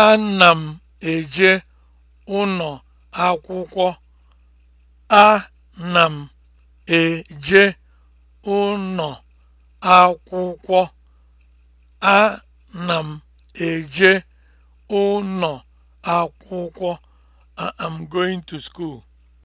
Ana m eje ụnọ akwụkwọ. Ana m eje ụnọ akwụkwọ. Ana m eje ụnọ akwụkwọ. I am going to school.